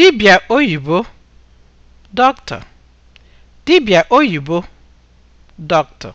dibịa oyibo dọkịta dibịa oyibo dọkịta.